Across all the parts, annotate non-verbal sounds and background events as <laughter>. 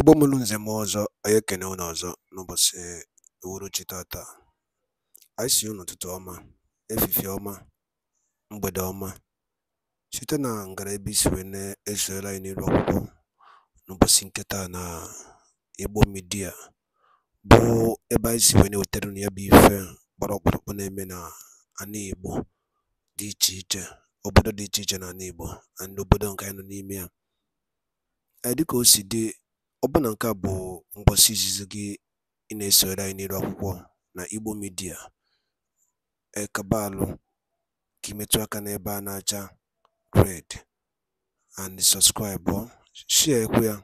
Igbo mụrụ nze m ọzọ, anyị ekene unu ọzọ n'ụbọchị uhuruchi tata. Anyị sị unu ụtụtụ ọma, efifie ọma, mgbede ọma, site na ngara ebe isi wee na-esoyere anyị n'iru akwụkwọ n'ụbọchị nketa na Igbo midia bụ ebe anyị si wee na-ewetara unu ya bụ ife gbara ọkpụrụkpụ na-eme na ana Igbo dị iche iche, obodo dị iche iche na ana Igbo na obodo nke anyị nọ n'ime ya. Dịka o si dị Ọbụna nke a bụ ngwụsị izizi gị ị na esoro anyị n'elu akwụkwọ na Igbo midia Ekabaalụ ka ị metụ aka n'ebe a na-acha red and sọpskraịbụ, shịakwa ya,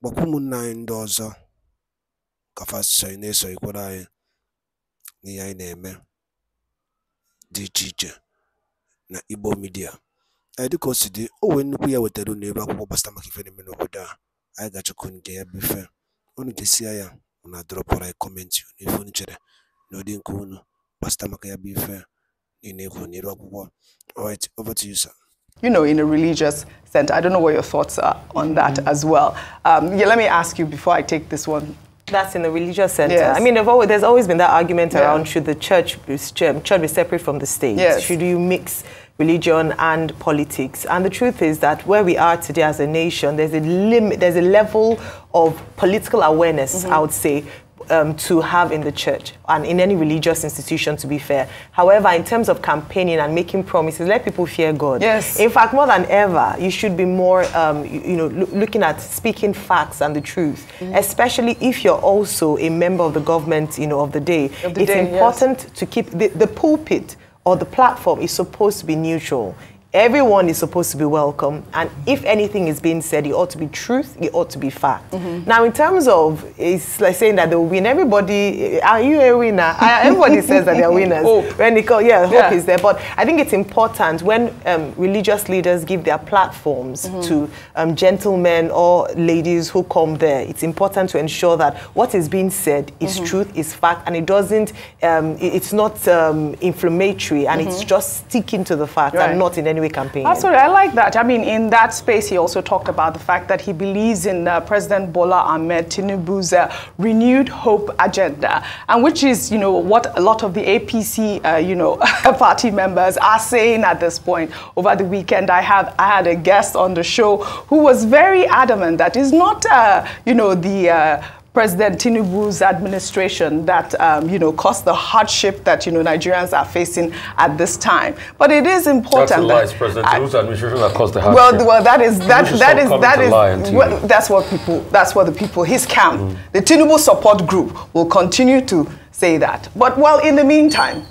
gwakwa ụmụnna anyị ndị ọzọ ka fa sonyere na-esonyekwara anyị n'ihe anyị na-eme dị iche iche na Igbo midia Ee, dịka o si dị, o nwee nnukwu ya wetara unu ebe akwụkwọ gbasara maka ife na-eme n'obodo a. anyị ga-achọkwu nke ya bụ ife unu ga-esia ya unu adọrọpụrụ anyị kọmentị n'ife unu chere na ụdị nke unu gbasata maka ya bụ ife niile you n'iru akwụkwọ alright over to you sir you know, in a religious sense. I don't know what your thoughts are on that mm -hmm. as well. Um, yeah, let me ask you before I take this one. That's in a religious sense. Yes. I mean, always, there's always been that argument yeah. around should the church be, should um, be separate from the state? Yes. Should you mix religion and politics. And the truth is that where we are today as a nation, there's a limit, there's a level of political awareness, mm -hmm. I would say, um, to have in the church and in any religious institution, to be fair. However, in terms of campaigning and making promises, let people fear God. Yes. In fact, more than ever, you should be more, um, you, you, know, looking at speaking facts and the truth, mm. especially if you're also a member of the government, you know, of the day. Of the it's day, important yes. to keep the, the pulpit or the platform is supposed to be neutral everyone is supposed to be welcome and if anything is being said it ought to be truth it ought to be fact mm -hmm. now in terms of it's like saying that they will win everybody are you a winner everybody <laughs> says that they're winners hope. when they call, yeah hope yeah. is there but i think it's important when um, religious leaders give their platforms mm -hmm. to um, gentlemen or ladies who come there it's important to ensure that what is being said is mm -hmm. truth is fact and it doesn't um, it's not um, inflammatory and it's mm-hmm. just sticking to the fact right. and not in any we campaign. Absolutely, ah, I like that. I mean, in that space, he also talked about the fact that he believes in uh, President Bola Ahmed Tinubu's uh, renewed hope agenda, and which is, you know, what a lot of the APC, uh, you know, <laughs> party members are saying at this point. Over the weekend, I have I had a guest on the show who was very adamant that it's not, uh, you know, the uh, President Tinubu's administration that um, you know caused the hardship that you know Nigerians are facing at this time. But it is important. That's a lie. That President Tinubu's administration that caused the hardship. Well, well, that is that that is that is well, that's what people that's what the people his camp, mm. the Tinubu support group, will continue to say that. But well, in the meantime,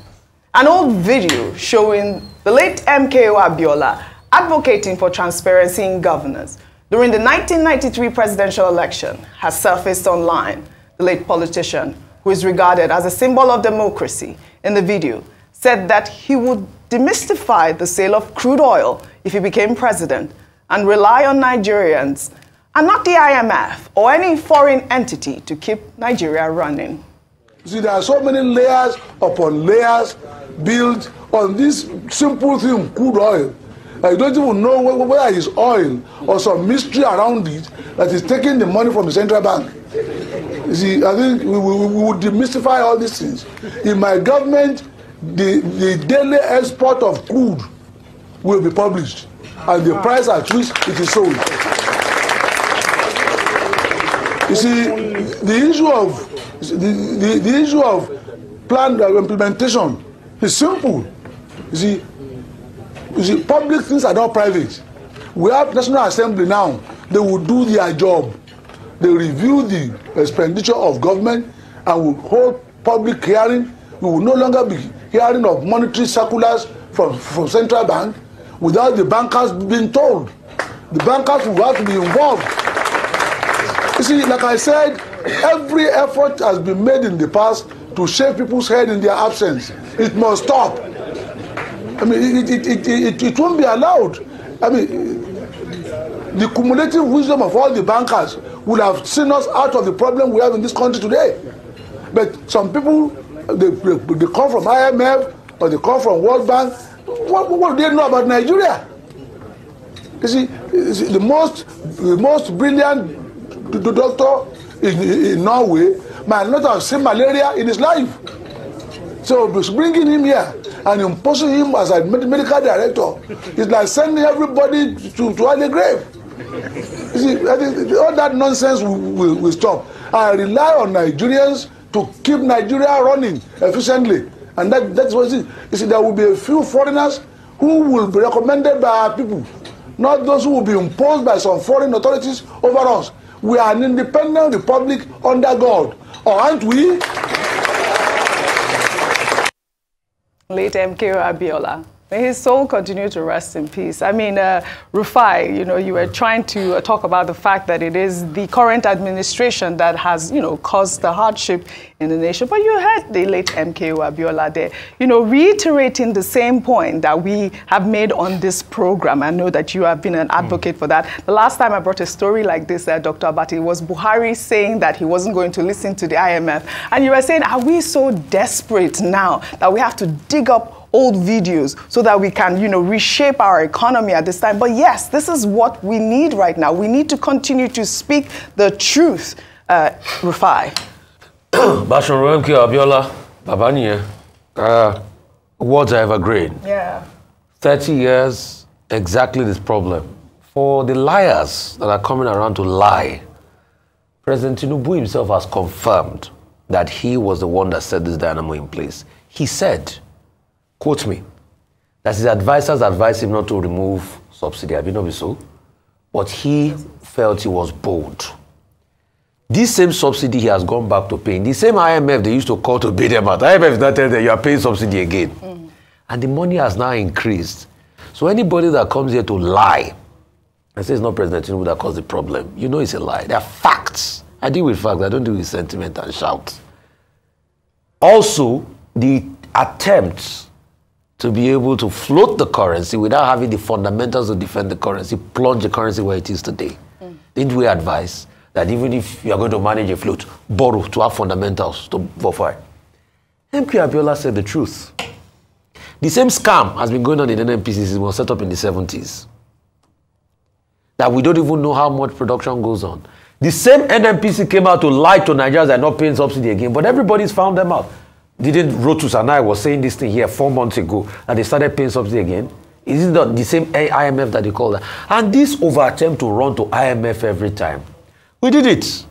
an old video showing the late MKO Abiola advocating for transparency in governance during the 1993 presidential election, has surfaced online the late politician, who is regarded as a symbol of democracy, in the video, said that he would demystify the sale of crude oil if he became president and rely on Nigerians and not the IMF or any foreign entity to keep Nigeria running. See, there are so many layers upon layers built on this simple thing, crude oil. Like you don't even know whether, whether it's oil or some mystery around it that is taking the money from the central bank. You see, I think we, we, we would demystify all these things. In my government, the, the daily export of crude will be published and the ah. price at which it is sold. You see, the issue of the, the, the issue of planned implementation is simple. You see, you see public things are not private we have national assembly now they will do their job they review the expenditure of government and will hold public hearing we will no longer be hearing of monetary circulars from from central bank without the bankers being told the bankers will have to be involved you see like i said every effort has been made in the past to shave people's head in their absence it must stop I mean, it, it, it, it, it won't be allowed. I mean, the cumulative wisdom of all the bankers would have seen us out of the problem we have in this country today. But some people, they, they come from IMF or they come from World Bank. What, what do they know about Nigeria? You see, you see the most, the most brilliant doctor in, in Norway might not have seen malaria in his life. So bringing him here and imposing him as a medical director is like sending everybody to to the grave. You see, that is, all that nonsense will, will, stop. I rely on Nigerians to keep Nigeria running efficiently, and that that's what it is. You see, there will be a few foreigners who will be recommended by our people, not those who will be imposed by some foreign authorities over us. We are an independent republic under God, or aren't we? late MKO Abiola. May his soul continue to rest in peace. I mean, uh, Rufai, you know, you were trying to uh, talk about the fact that it is the current administration that has, you know, caused the hardship in the nation. But you heard the late MKO Abiola there, you know, reiterating the same point that we have made on this program. I know that you have been an advocate mm. for that. The last time I brought a story like this, uh, Dr. Abati, was Buhari saying that he wasn't going to listen to the IMF. And you were saying, are we so desperate now that we have to dig up old videos so that we can, you know, reshape our economy at this time. But yes, this is what we need right now. We need to continue to speak the truth, uh, Rufai. <coughs> Bashorun MK Abiola, Babaniye, uh, words are evergreen. Yeah. 30 years, exactly this problem. For the liars that are coming around to lie, President Tinubu himself has confirmed that he was the one that set this dynamo in place. He said Quote me that his advisors advised him not to remove subsidy. Have you not so? But he felt he was bold. This same subsidy he has gone back to paying. The same IMF they used to call to pay them out. IMF now not telling them you are paying subsidy again. Mm. And the money has now increased. So anybody that comes here to lie and says it's not President Tinubu that caused the problem, you know it's a lie. They are facts. I deal with facts. I don't deal with sentiment and shout. Also, the attempts to be able to float the currency without having the fundamentals to defend the currency, plunge the currency where it is today. Mm. Didn't we advise that even if you are going to manage a float, borrow to have fundamentals to for it? MQ Abiola said the truth. The same scam has been going on in NNPC since it was set up in the 70s. That we don't even know how much production goes on. The same NMPC came out to lie to Nigerians and not paying subsidy again, but everybody's found them out didn't Rotus and I was saying this thing here four months ago that they started paying something again? Is it not the same IMF that they call that? And this over attempt to run to IMF every time. We did it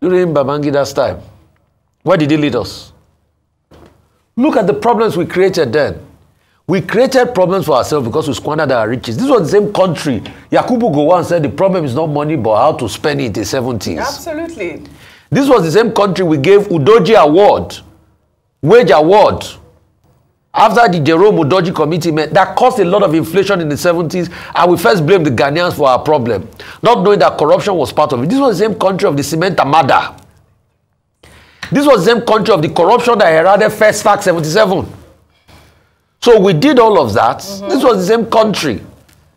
during Babangida's time. Where did he lead us? Look at the problems we created then. We created problems for ourselves because we squandered our riches. This was the same country. Yakubu Gowon said the problem is not money but how to spend it in the 70s. Absolutely. This was the same country we gave Udoji Award wage award after the Jerome Udoji committee met, that caused a lot of inflation in the 70s, and we first blamed the Ghanaians for our problem, not knowing that corruption was part of it. This was the same country of the cement murder. This was the same country of the corruption that eroded First Fact 77. So we did all of that. Mm -hmm. This was the same country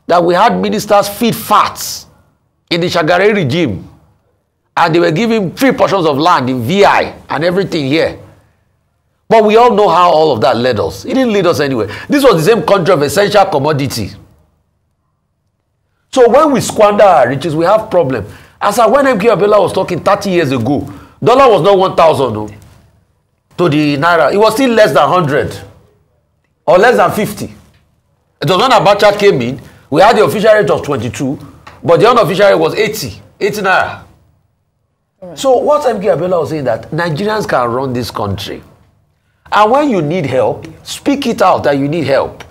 that we had ministers feed fats in the Shagare regime, and they were giving three portions of land in VI and everything here. But we all know how all of that led us. It didn't lead us anywhere. This was the same country of essential commodity. So when we squander our riches, we have problem. As I when MK Abela was talking 30 years ago, dollar was not 1,000 no, to the naira. It was still less than 100 or less than 50. It was when Abacha came in, we had the official rate of 22, but the unofficial rate was 80, 80 naira. Right. So what MK Abela was saying that Nigerians can run this country. And when you need help, speak it out that you need help.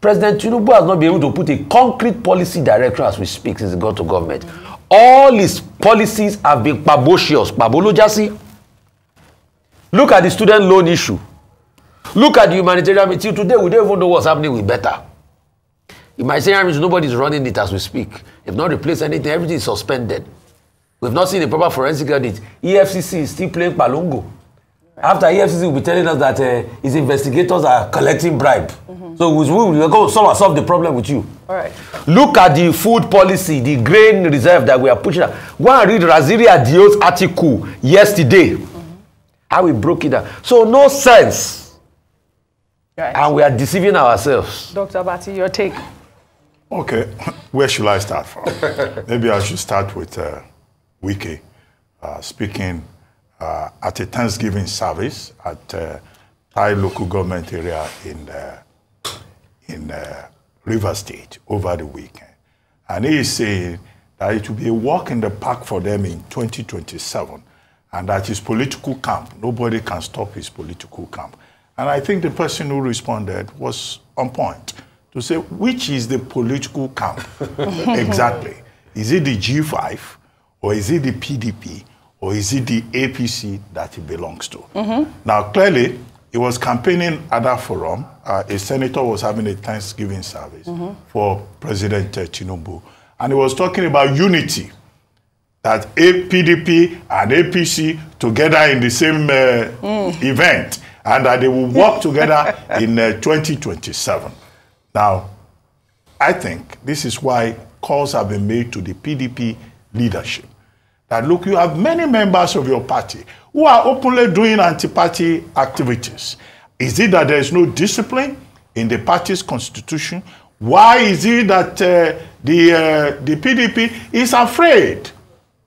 President Tinubu has not been able to put a concrete policy direction as we speak since he got to government. All his policies have been pabocious, pabolojasi. Look at the student loan issue. Look at the humanitarian meeting. Today, we don't even know what's happening with better. Humanitarian means nobody's running it as we speak. They've not replaced anything, everything is suspended. We've not seen a proper forensic audit. EFCC is still playing Palongo after efcc will be telling us that uh, his investigators are collecting bribe mm -hmm. so we will go somehow solve the problem with you All right. look at the food policy the grain reserve that we are pushing out go and read raziri adios article yesterday mm -hmm. how we broke it down so no sense right. and we are deceiving ourselves dr abati your take okay <laughs> where should i start from <laughs> maybe i should start with uh, wiki uh, speaking uh, at a Thanksgiving service at uh, Thai local government area in uh, in uh, River State over the weekend. And he is saying that it will be a walk in the park for them in 2027 and that his political camp, nobody can stop his political camp. And I think the person who responded was on point to say, which is the political camp <laughs> exactly? Is it the G5 or is it the PDP? or is it the APC that he belongs to? Mm -hmm. Now, clearly, he was campaigning at that forum. Uh, a senator was having a Thanksgiving service mm -hmm. for President Tinubu, and he was talking about unity that APDP and APC together in the same uh, mm. event and that they will work together <laughs> in uh, 2027. Now, I think this is why calls have been made to the PDP leadership that look, you have many members of your party who are openly doing anti-party activities. Is it that there is no discipline in the party's constitution? Why is it that uh, the, uh, the PDP is afraid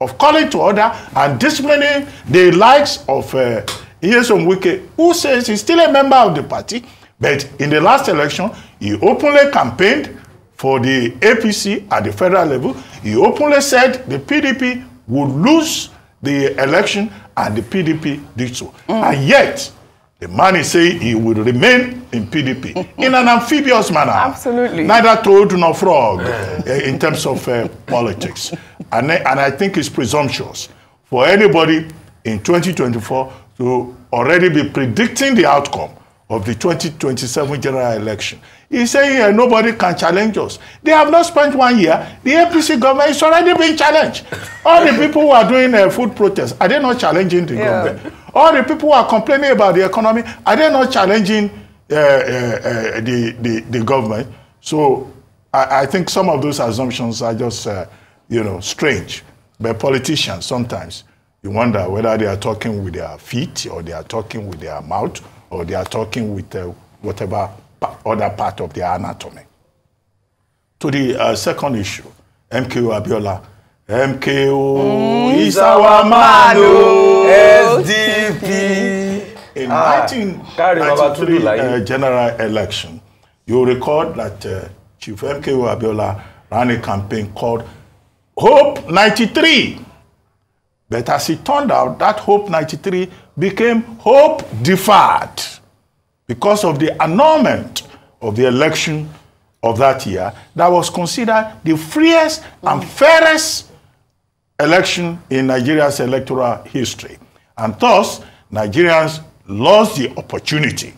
of calling to order and disciplining the likes of uh, Iyesom Wike, who says he's still a member of the party, but in the last election, he openly campaigned for the APC at the federal level. He openly said the PDP would lose the election and the PDP did so. Mm. And yet, the man is saying he will remain in PDP mm-hmm. in an amphibious manner. Absolutely. Neither toad nor frog eh, in terms of uh, politics. And, and I think it's presumptuous for anybody in 2024 to already be predicting the outcome of the 2027 general election. he said, here nobody can challenge us. They have not spent one year. The APC government is already being challenged. All the people who are doing uh, food protests, are they not challenging the yeah. government? All the people who are complaining about the economy, are they not challenging uh, uh, uh, the, the, the government? So I, I think some of those assumptions are just, uh, you know, strange. But politicians sometimes, you wonder whether they are talking with their feet or they are talking with their mouth or they are talking with uh, whatever pa other part of their anatomy. To the uh, second issue, MKO Abiola, MKO mm. Mm-hmm. is our man, oh, oh. SDP. <laughs> In ah, 1993 uh, general election, you recall that uh, Chief MKO Abiola ran a campaign called Hope 93. But as it turned out, that Hope 93 became hope deferred because of the annulment of the election of that year that was considered the freest and fairest election in Nigeria's electoral history. And thus, Nigerians lost the opportunity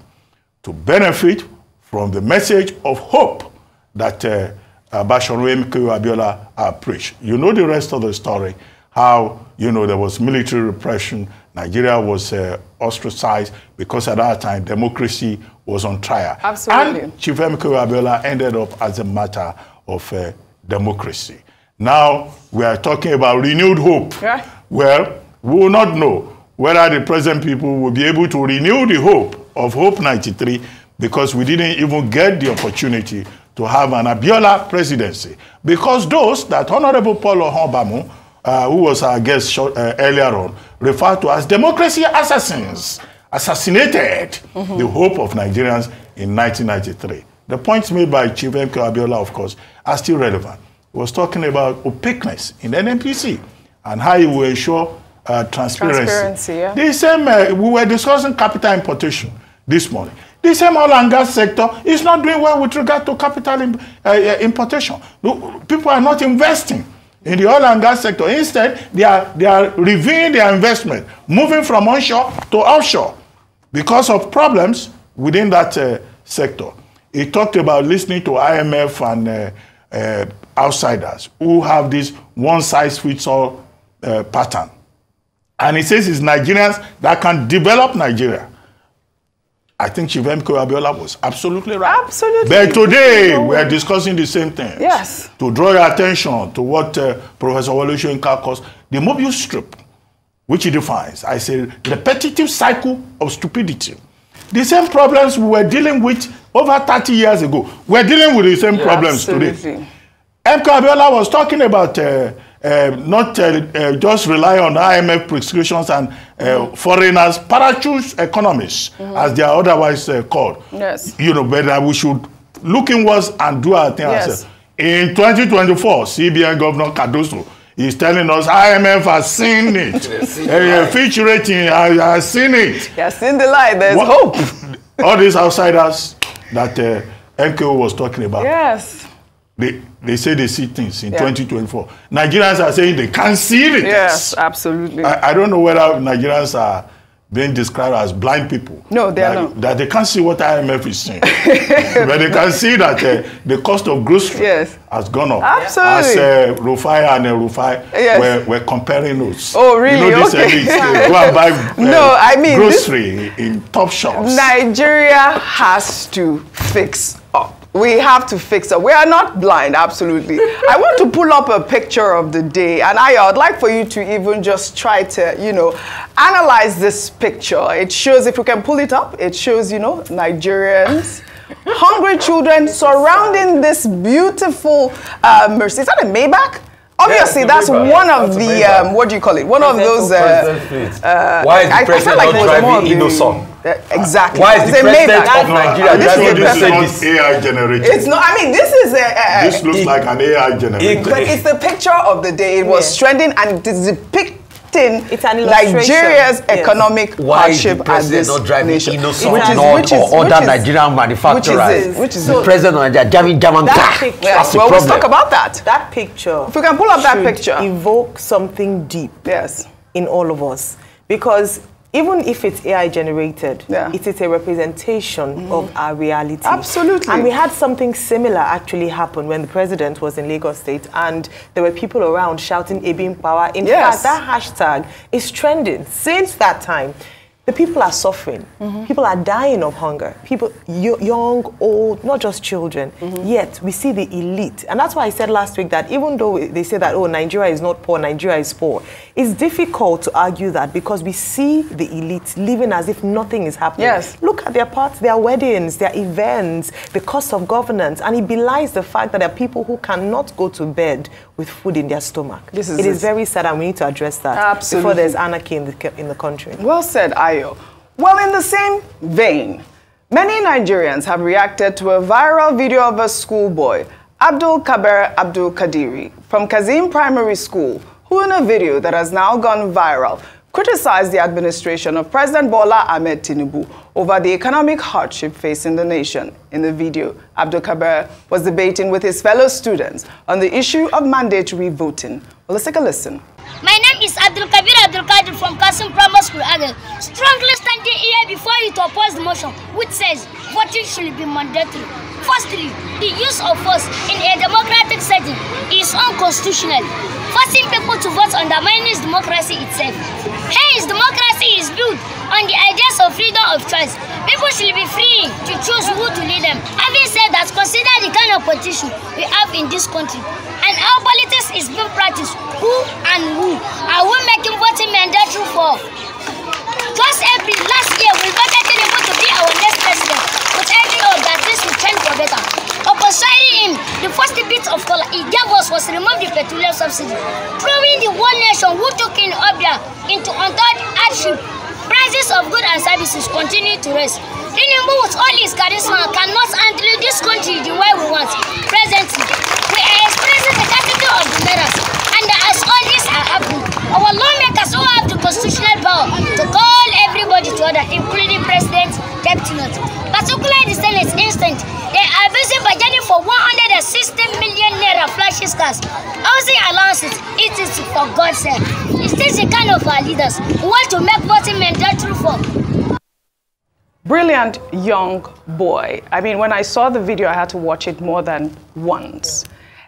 to benefit from the message of hope that uh, Bashorwe Mikayo Abiola uh, preached. You know the rest of the story. how, you know, there was military repression. Nigeria was uh, ostracized because at that time democracy was on trial. Absolutely. And Chief Emeka Abiola ended up as a matter of uh, democracy. Now we are talking about renewed hope. Yeah. Well, we will not know whether the present people will be able to renew the hope of Hope 93 because we didn't even get the opportunity to have an Abiola presidency. Because those that Honorable Paulo Honbamu uh, who was our guest short, uh, earlier on, referred to as democracy assassins, assassinated mm -hmm. the hope of Nigerians in 1993. The points made by Chief M. Abiola, of course, are still relevant. He was talking about opaqueness in NNPC and how he will ensure uh, transparency. transparency yeah. The same, uh, we were discussing capital importation this morning. The same oil and gas sector is not doing well with regard to capital imp uh, uh, importation. People are not investing in the oil and gas sector. Instead, they are, they are reviewing their investment, moving from onshore to offshore because of problems within that uh, sector. He talked about listening to IMF and uh, uh, outsiders who have this one size fits all uh, pattern. And he says it's Nigerians that can develop Nigeria. I think Chief MK Abiola was absolutely right. Absolutely. But today we are discussing the same thing. Yes. To draw your attention to what uh, Professor Walushenka calls the Mobius strip, which he defines as a repetitive cycle of stupidity. The same problems we were dealing with over 30 years ago, we're dealing with the same yeah, problems absolutely. today. MK Abiola was talking about uh, um, not uh, uh, just rely on IMF prescriptions and uh, mm. foreigners, parachute economists, mm -hmm. as they are otherwise uh, called. Yes. You know, but uh, we should look inwards and do our thing yes. ourselves. In 2024, CBN Governor Cardoso is telling us IMF has seen it. uh, <laughs> Fitch rating has, has seen it. He has seen the light. There's what, hope. <laughs> all these outsiders that uh, MKO was talking about. Yes. They, they say they see things in yeah. 2024. Nigerians are saying they can't see it. Yes, absolutely. I, I don't know whether Nigerians are being described as blind people. No, they are not. That they can't see what IMF is saying. <laughs> but they can see that uh, the cost of groceries yes. has gone up. Absolutely. As uh, Rufai and uh, Rufai yes. were, were comparing notes. Oh, really? You know, this uh, okay. elite, uh, go and buy <laughs> uh, no, I mean, grocery this... in top shops. Nigeria has to fix We have to fix it. We are not blind, absolutely. I want to pull up a picture of the day, and I, I'd like for you to even just try to, you know, analyze this picture. It shows, if you can pull it up, it shows, you know, Nigerians. hungry children surrounding this beautiful uh, Mercy. Is that a Maybach? Obviously, yeah, that's Maybach. one of that's the, um, what do you call it? One of those. Uh, uh, Why is the I, president I like not driving Innocent? Uh, exactly. Why is the made president of Nigeria this is this not this. AI generated? It's not. I mean, this is a. a this looks it, like an AI generated. it's the picture of the day. It was trending, and depicting the picture it's an Nigeria's yes. economic Why hardship as this not driving nation, innocent which is, North which is, or other Nigerian manufacturers. Which is, which is the so president of Nigeria driving German that car. Ah, picture, That's well, Let's talk about that. That picture. If we can pull up that picture, evoke something deep. Yes. In all of us, because even if it's AI generated, yeah. it is a representation mm. of our reality. Absolutely. And we had something similar actually happen when the president was in Lagos State and there were people around shouting Ebim Power. In yes. fact, that hashtag is trending since that time the people are suffering. Mm -hmm. People are dying of hunger. People, young, old, not just children. Mm -hmm. Yet we see the elite, and that's why I said last week that even though they say that oh Nigeria is not poor, Nigeria is poor, it's difficult to argue that because we see the elite living as if nothing is happening. Yes. Look at their parts, their weddings, their events, the cost of governance, and it belies the fact that there are people who cannot go to bed with food in their stomach. This is it, it is very sad, and we need to address that Absolutely. before there's anarchy in the in the country. Well said. I well, in the same vein, many Nigerians have reacted to a viral video of a schoolboy, Abdul Kaber Abdul Kadiri, from Kazim Primary School, who in a video that has now gone viral, criticized the administration of President Bola Ahmed Tinubu over the economic hardship facing the nation. In the video, Abdul Kaber was debating with his fellow students on the issue of mandatory voting. Well, let's take a listen. My name is Abdul Kabir Abdul Kadir from Kasim Primary School, Agal. Strongly standing here before you to oppose the motion, which says voting should be mandatory. Firstly, the use of force in a democratic setting is unconstitutional. Forcing people to vote undermines democracy itself. Hence, democracy is built on the ideas of freedom of choice. People should be free to choose who to lead them. Having said that, consider the kind of politician we have in this country and our politics This is being practiced. Who and who? Are we making voting mandatory for? Just every last year, we voted Tinubu to be our next president, but I know that this will change for better. Upon signing him, the first bit of color he gave us was to remove the petroleum subsidy, proving the one nation who took in Obia into untold hardship. Prices of goods and services continue to rise. Tinubu, with all his charisma, cannot handle this country the way we want presently. of letters. And as all this are uh, happening, uh, our lawmakers who have the constitutional power to call everybody to order, including President Deputy particularly the Senate instant, they are busy budgeting for 160 million naira flashes cars. Housing allowances, it is for God's sake. Is this the kind of our leaders who want to make voting mandatory for? Brilliant young boy. I mean, when I saw the video, I had to watch it more than once.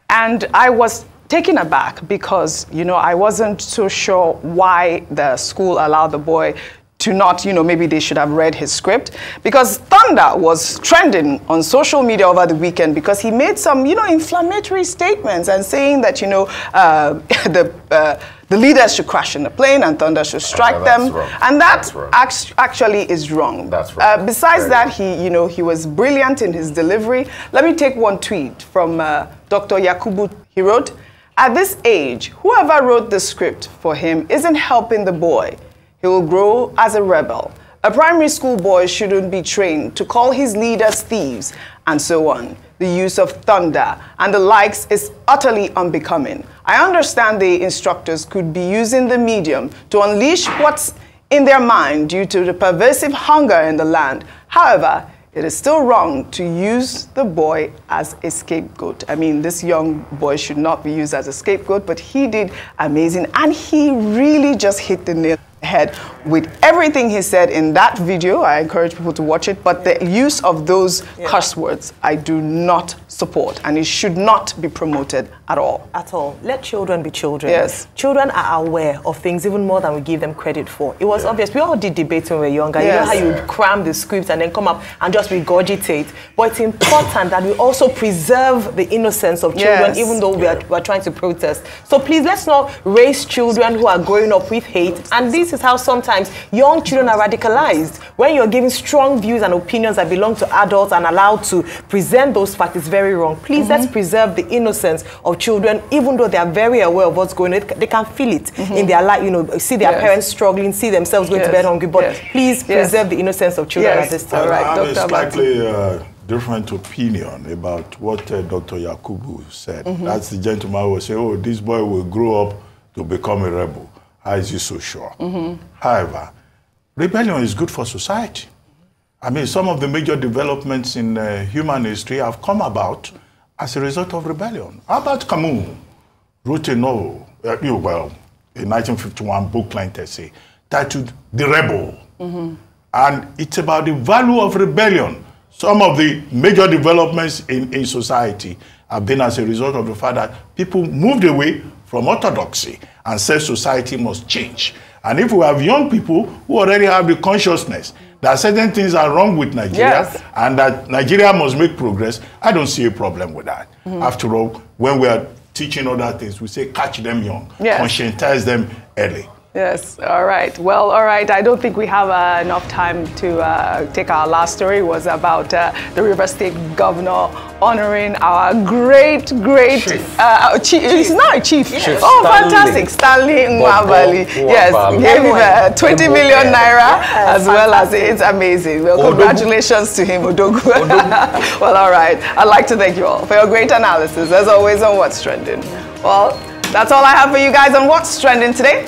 And I was taken aback because, you know, I wasn't so sure why the school allowed the boy to not, you know, maybe they should have read his script. Because Thunder was trending on social media over the weekend because he made some, you know, inflammatory statements and saying that, you know, uh, <laughs> the, uh, the leaders should crash in the plane and thunder should strike them. Wrong. And that act actually is wrong. That's uh, wrong. Uh, besides Very that, he, you know, he was brilliant in his delivery. Let me take one tweet from uh, Dr. Yakubu. He wrote, at this age, whoever wrote the script for him isn't helping the boy. He will grow as a rebel. A primary school boy shouldn't be trained to call his leaders thieves, and so on. The use of thunder and the likes is utterly unbecoming. I understand the instructors could be using the medium to unleash what's in their mind due to the pervasive hunger in the land. However, it is still wrong to use the boy as a scapegoat. I mean, this young boy should not be used as a scapegoat, but he did amazing and he really just hit the nail head with everything he said in that video. I encourage people to watch it, but yeah. the use of those yeah. curse words I do not support and it should not be promoted at all. At all. Let children be children. Yes. Children are aware of things even more than we give them credit for. It was yeah. obvious. We all did debates when we were younger. Yes. You know how you cram the scripts and then come up and just regurgitate. But it's important that we also preserve the innocence of children yes. even though we are, we are trying to protest. So please let's not raise children who are growing up with hate and this this is how sometimes young children are radicalized. When you're giving strong views and opinions that belong to adults and allowed to present those facts, it's very wrong. Please, mm -hmm. let's mhm. preserve the innocence of children, even though they are very aware of what's going on. They can feel it mm -hmm. in their life, you know, see their yes. parents struggling, see themselves going yes. to bed hungry. But yes. please preserve the innocence of children at this time. All right, Dr. Dr. Slightly, uh, different opinion about what uh, Dr. Yakubu said. Mm -hmm. That's the gentleman who said, oh, this boy will grow up to become a rebel. How ah, is he so sure? Mm -hmm. However, rebellion is good for society. I mean, some of the major developments in uh, human history have come about as a result of rebellion. How about Camus wrote a novel, uh, well, a 1951 booklet essay titled The Rebel. Mm -hmm. And it's about the value of rebellion. Some of the major developments in, in society have been as a result of the fact that people moved away from orthodoxy and said society must change. And if we have young people who already have the consciousness that certain things are wrong with Nigeria yes. and that Nigeria must make progress, I don't see a problem with that. Mm -hmm. After all, when we are teaching other things, we say catch them young, yes. conscientize them early. Yes, all right. Well, all right. I don't think we have uh, enough time to uh, take our last story. It was about uh, the River State governor honoring our great, great chief. Uh, our chief, chief. He's not a chief. Yes. oh, Stanley. fantastic. Stanley uh, Mwabali. Yes, gave 20 million naira as well as it's amazing. Well, Odogu. congratulations to him, Odogu. Odogu. <laughs> well, all right. I'd like to thank you all for your great analysis, as always, on What's Trending. Well, that's all I have for you guys on What's Trending today.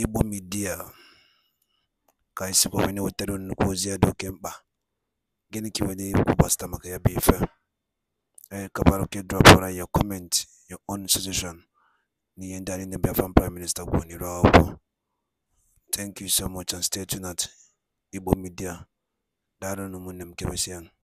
Igbo Media ka anyị sikwa wee na-ewetara nnukwu ozi ya dị oke mkpa gịnị ka nwere ikwu gbasịta maka ya bụ ife eh, anyị kabara oke drọpụra ya comment your own suggestion ni ndị anyị na Biafran prime minister kwuo n'iru akwụkwọ thank you so much and stay tuned at Igbo Media daalụ ụmụnne m keresian